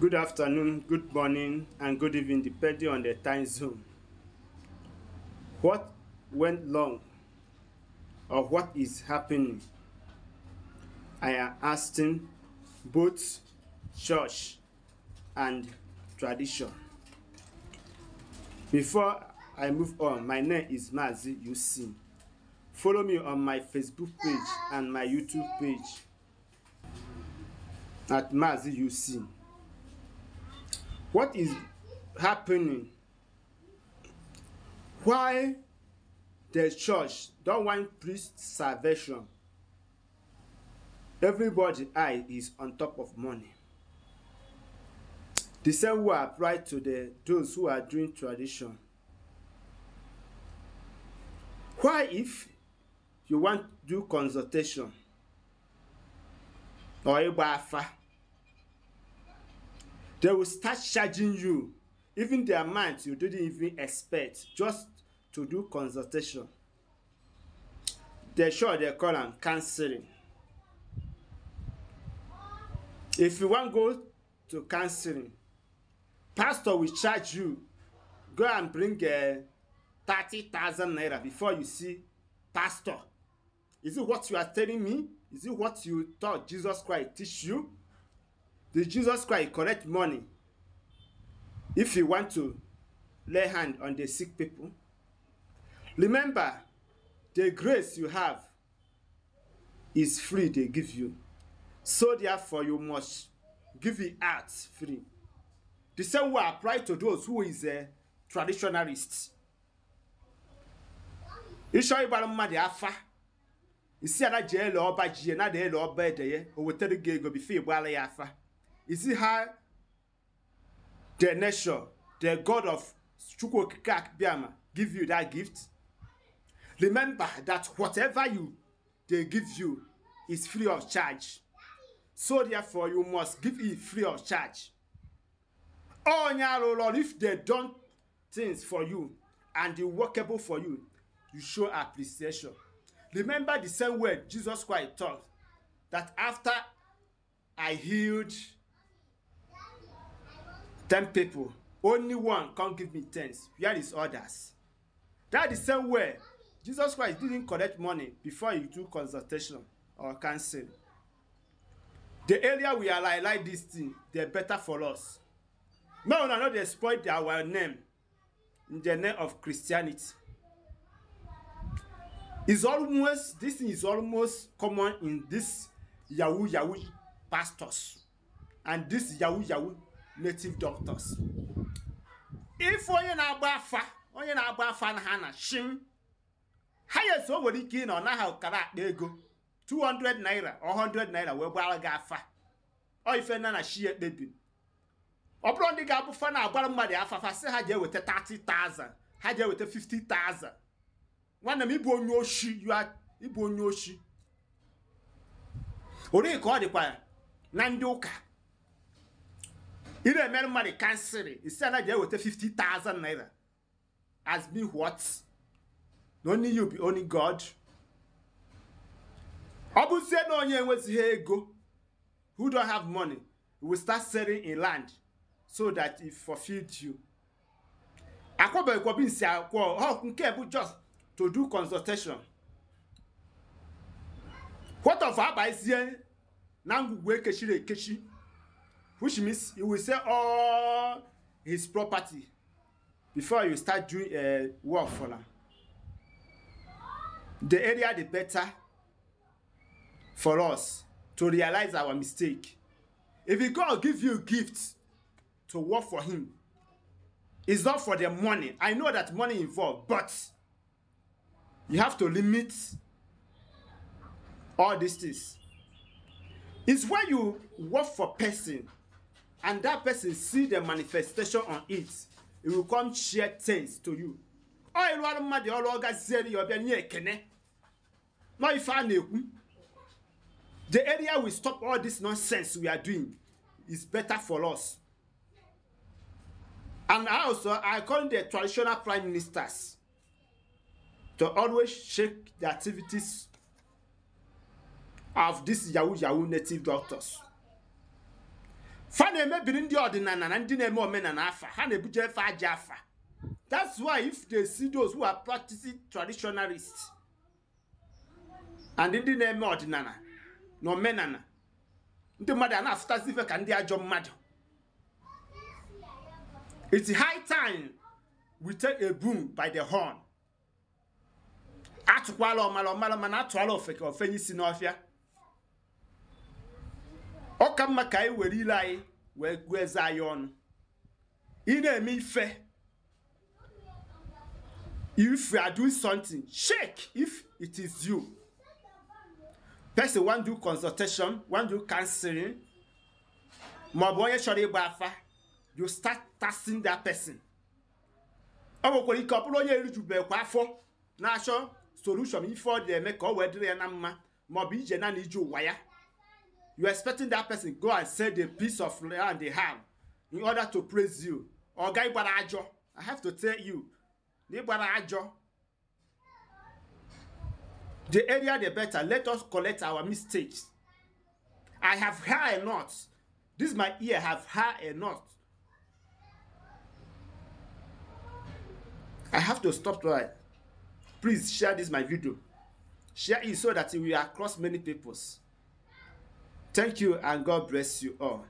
Good afternoon, good morning, and good evening, depending on the time zone. What went wrong or what is happening? I am asking both church and tradition. Before I move on, my name is Mazi Yusin. Follow me on my Facebook page and my YouTube page at Mazi Yusin. what is happening why the church don want priest salvation everybody eye is on top of money the same way apply to the those who are doing tradition why if you wan do consultation or igba afa They will start charging you, even their amount you didn't even expect, just to do consultation. They sure they call and counseling. If you to go to counseling, pastor will charge you. Go and bring a eh, 30,000 naira before you see pastor. Is it what you are telling me? Is it what you thought Jesus Christ teach you? Did Jesus Christ collect money if he want to lay hand on the sick people? Remember, the grace you have is free they give you. So therefore you must give it out free. The same will apply to those who is a uh, traditionalist. afa isi afa you see how the nation, the God of Chukwokike Biama, give you that gift? Remember that whatever you they give you is free of charge. So therefore, you must give it free of charge. Oh, Lord, if they done things for you and they workable for you, you show appreciation. Remember the same word Jesus Christ taught that after I healed ten people only one come give me tens where is others that the same way jesus christ didn't collect money before he do consultation or counsel the area we are like like this thing dey better for us make una no dey spoil our name in the name of christianity is almost this thing is almost common in this yahoo yahoo pastors and this yahoo yahoo native doctors ife onye na-agba afa onye na-agba afa na ha na shim ha ya nwere ike ị na ọ naghị akpa ego 200 naira or 100 naira wee gbara gị afa ọ ife na na shi ekpebi ọ bụrụ ndị ga-abụ fa na-agbara mmadụ afafa sị ha ji eweta 30,000 ha ji eweta 50,000 nwanne m ịbụ onye oshi ịbụ onye oshi ori ka ọ dịkwa na ndị ụka ile emerụma dị kansịlị isi a naghị eweta 50,000 naira as me what na only you be only god ọ bụzie na onye enwezighị ego who don't have money will start selling in land so that it fulfilled you akwọbeghịkwa nsi akwọ ọ nke bụ just to do consultation what of abazie na ngwugwu ekechiri ekechi which means he will sell all his property before you start doing uh, work for am the earlier the better for us to realize our mistake if god give you gift to work for him it's not for the money i know that money involved but you have to limit all these things it's when you work for person and that person see the manifestation on it it will come share things to you ọ ịrụ ọrụ mmadụ ọrụ ọ gazie ya ọbịa nye ekene nọ ife a na-ekwu the area we stop all this nonsense we are doing is better for us and I also i call the traditional prime ministers to always shake the activities of these yahoo yahoo native doctors. fa na-emebiri ndị ọdịnala na ndị na-eme omenala afa ha na-ebuje efe aja afa that's why if they see those who are practicing traditionalist. and ndị na-eme ọdịnala na omenala ndị mmadụ a na-asụtasị ife ka ndị ajọ mmadụ it's high time we take a boom by the horn atụkwala ọmala ọmala mana atụala ka ofenye isi n'ọfịa ọ ka mma ka anyị were ile anyị wee gụọ eze anyị ọnụ ị na-eme ife if you are doing something shake if it is you person wan do consultation wan do counseling bụ onye chọrọ ịgba afa you start testing that person ọ nwekwara ike ọ bụrụ onye erijubekwa afọ na-achọ solution ife ọ dị eme ka ọ wee dịrị ya na mma bụ ije naanị ije ụwa ya you're expecting that person go and sell the piece of land they have in order to praise you ọ̀gá ìgbàlá àjọ i have to tell you nígbàlá àjọ the area the better let us collect our mistakes i have heard a lot this my ear have heard a lot i have to stop right please share this my video share it so that we are across many peoples. Thank you and God bless you all.